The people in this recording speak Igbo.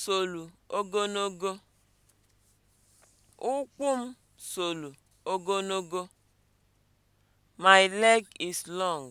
solu ogonogo! ụkwụ m solu ogonogo! my leg is long